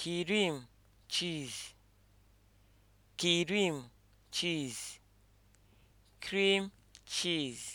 kirim chiz kirim chiz cream cheese